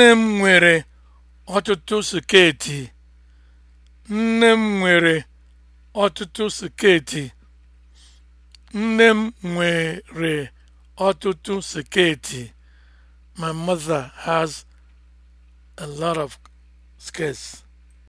Nne m nwere ọtụtụ sketi. Nne m nwere ọtụtụ My mother has a lot of skirts.